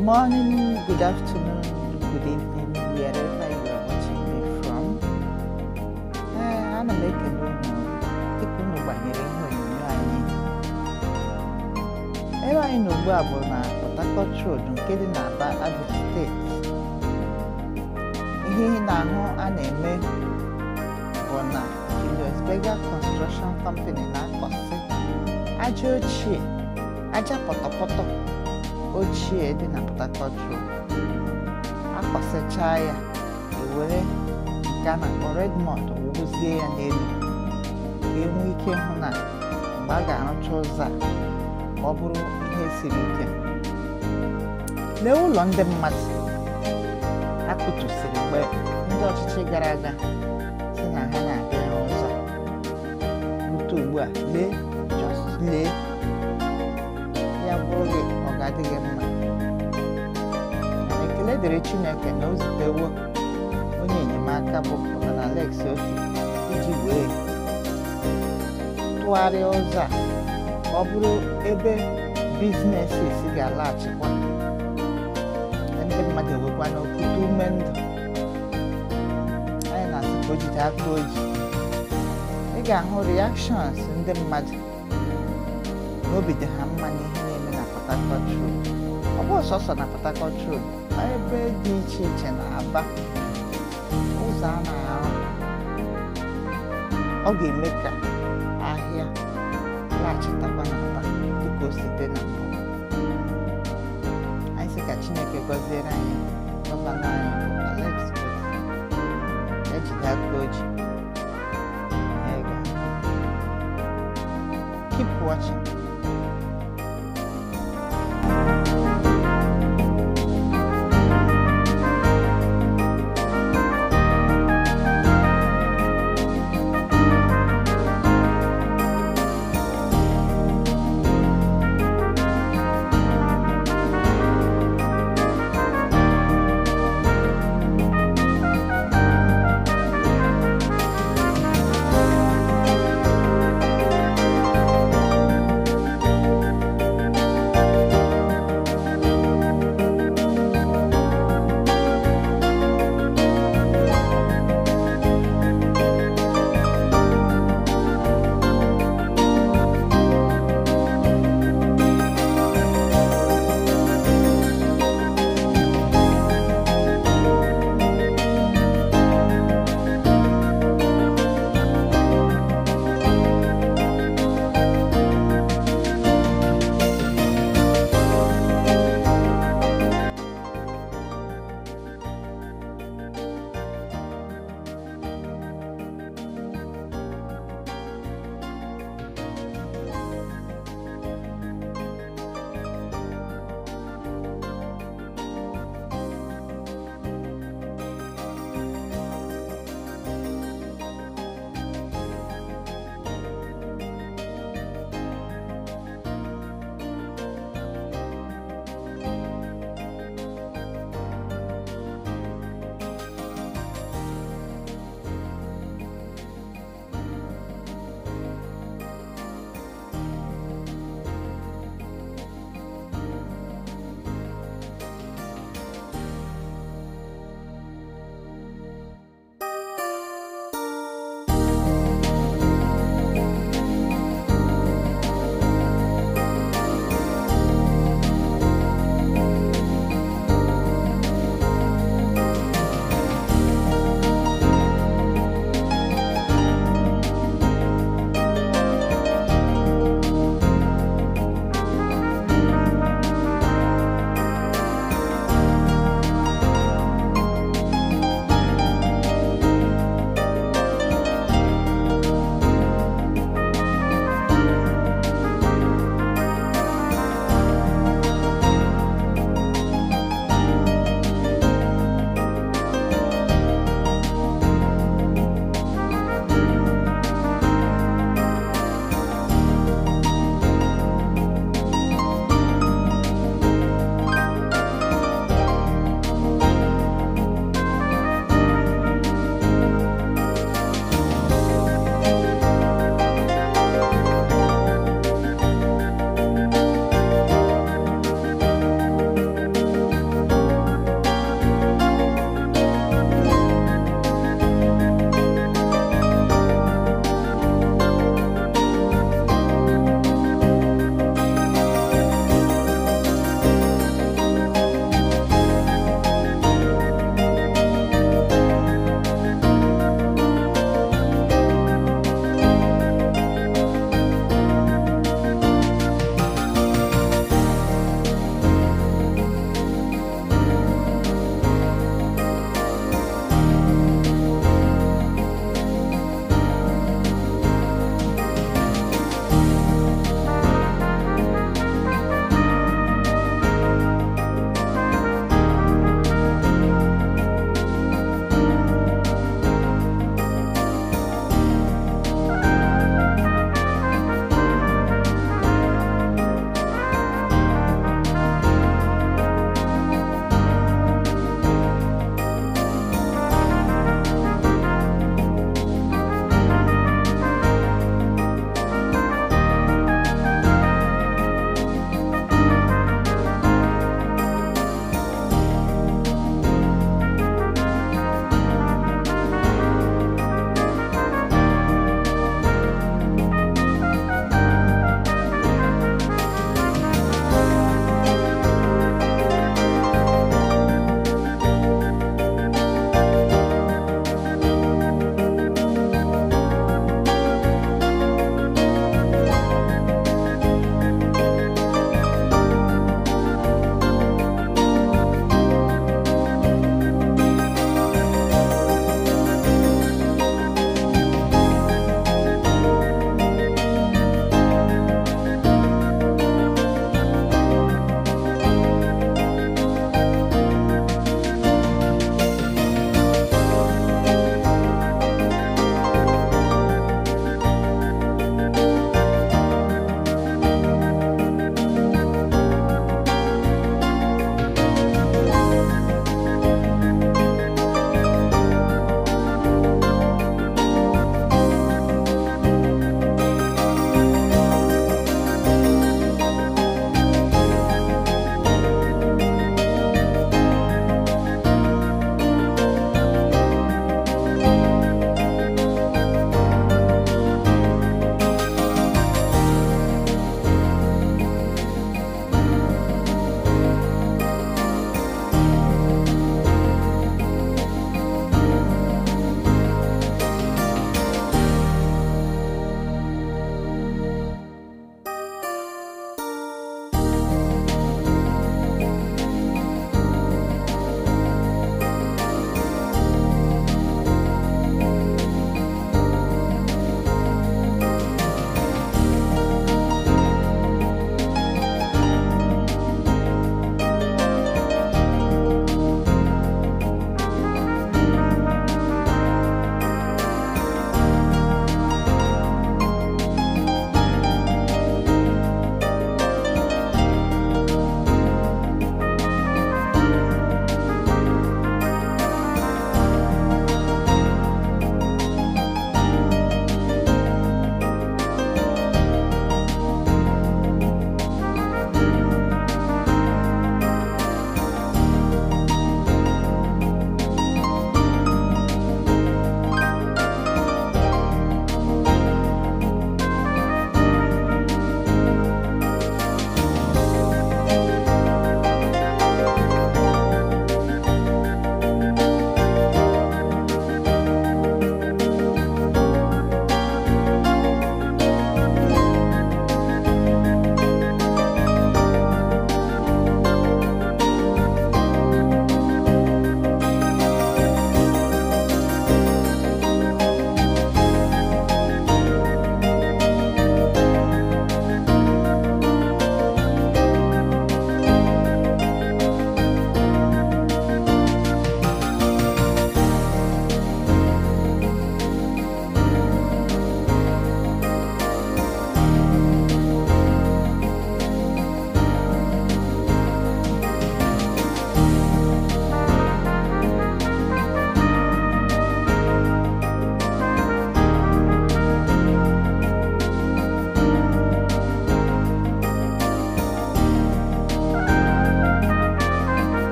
morning, good afternoon, good evening, wherever you are watching me from. Ee, ana m ekele unu tupu unu gbanyere ihe anyị. Ebe anyị nọ a bụ na Port Harcourt Road nke dị n'Aba, Abia steeti. Ihe na-ahụ a na-eme bụ na Julius Berger Construction Company na-akọsị aja ochie, aja pọtọpọtọ ochie dị na Port Harcourt ya ewere nke a na-akpọ Redmond ya n'elu enwe ike hụ na mgbe a ga-arụcha ụzọ a ka ọ bụrụ ihe siri ike lee ụlọ ndị mmadụ akụtusiri mgbe ndị ọchịchị gara aga si na ha na-abịa ụzọ rute ugbu a lee lee adịghị mma ekele dịrị chineke na o onye enyemaka bụ na Alex iji wee tụgharịa ụzọ a ọ bụrụ ebe biznesis ga-alaghachikwa ndị mmadụ ewekwa n'okwute ume ndụ anyị na-asị ka o aka oji ị ga-ahụ rịakshọns ndị mmadụ n'obi dị ha Harcourt Road ọ bụghị sọsọ na Port Harcourt Road ma ebe dị iche iche na Aba ụzọ a na-arụ ọ ga-eme ka ahịa laghachitakwa na Aba dịka o site na anyị sị ka Chineke gọziere anyị gọvanọ anyị Alex ejide aka oji keep watching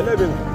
11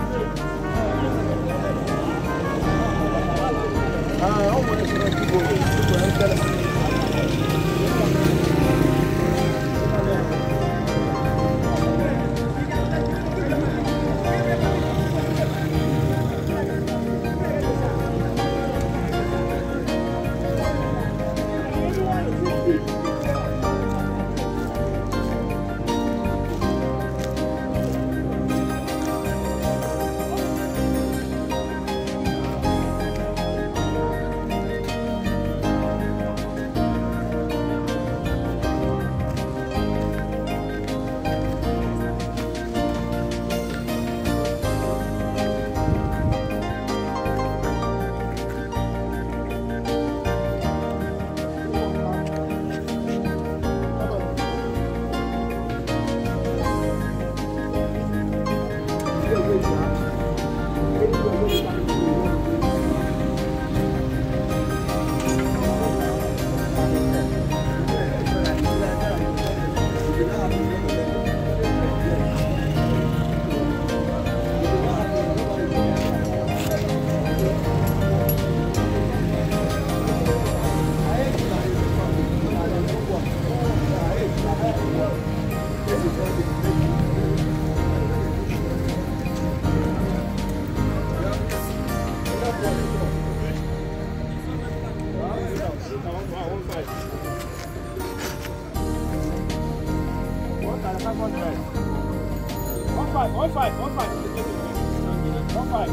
pai.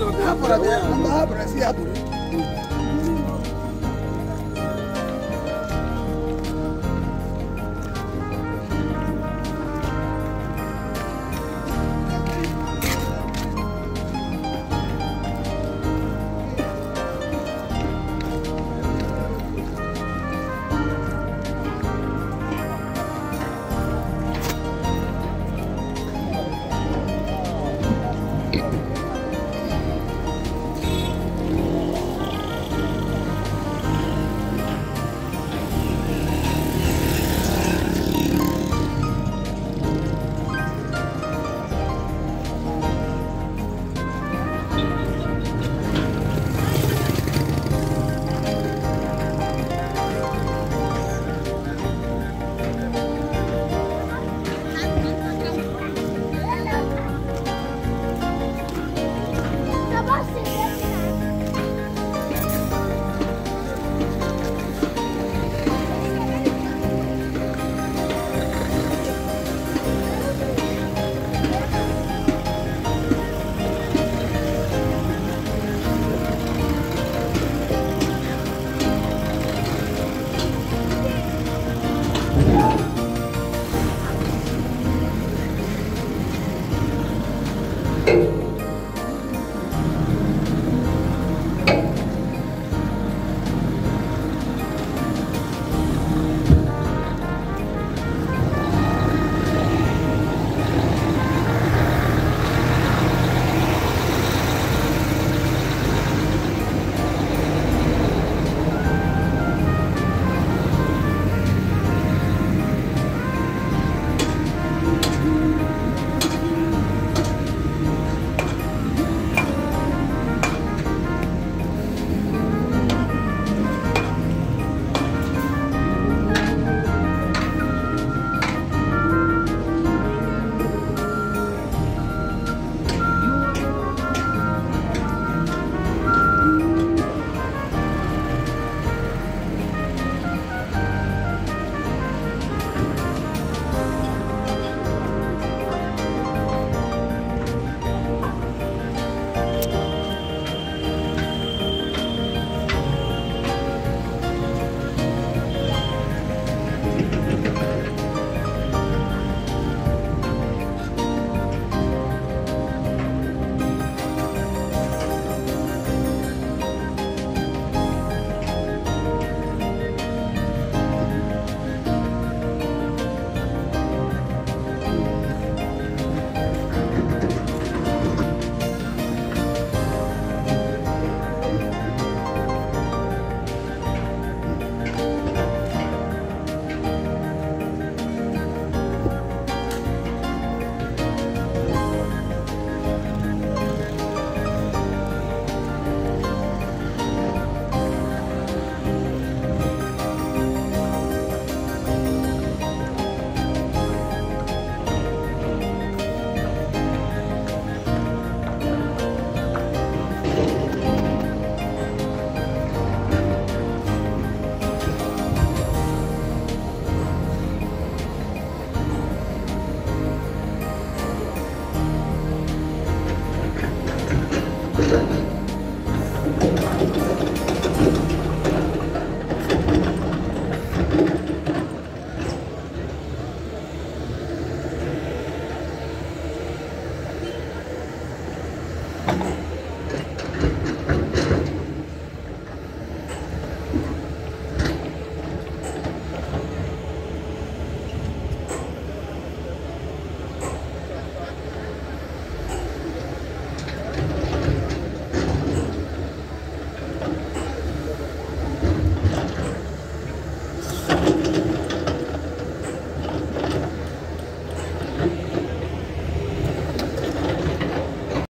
Não, abra, abra, abra.